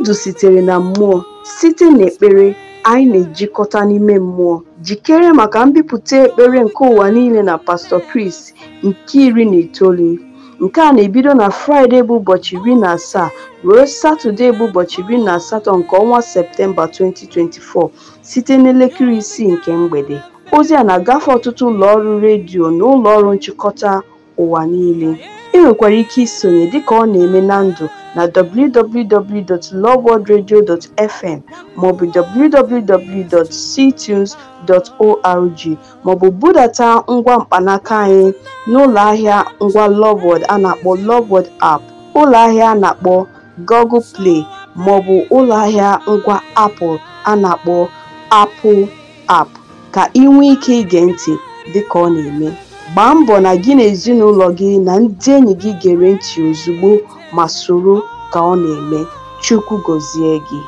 Ndụ sitere na Mmụọ Site n'ekpere, anyị na-ejikọta n'ime mmụọ. Jikere maka mbipụta ekpere nke ụwa niile na pastọ Chris nke iri na itoolu. Nke a na-ebido na Fraịde bụ ụbọchị iri na asaa ruo Satọde bụ ụbọchị iri na asatọ nke ọnwa Septemba 2024 site n'elekere isii nke mgbede. Ozi a na-agafe ọtụtụ ụlọọrụ redio na ụlọọrụ nchịkọta ụwa niile. Ị nwekwara ike isonye dịka ọ na-eme na ndụ na www.lovewoodradio.fm maọbụ www.ctunes.org maọbụ budata ngwa mkpanaka anyị ahịa ngwa lovewood a na-akpọ lovewood App, ụlọahịa a na-akpọ Google Play maọbụ ahịa ngwa Apple a na-akpọ Apple App, ka ị nwee ike ige ntị dịka ọ na-eme. Gbaa mbọ na gị na ezinụlọ gị na ndị enyi gị gere ntị ozugbo ma soro ka ọ na-eme. Chukwu gọzie gị.